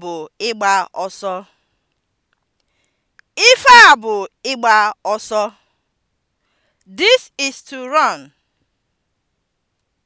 bụ ịgba ọsọ! Ife a bụ ịgba ọsọ! This is to run.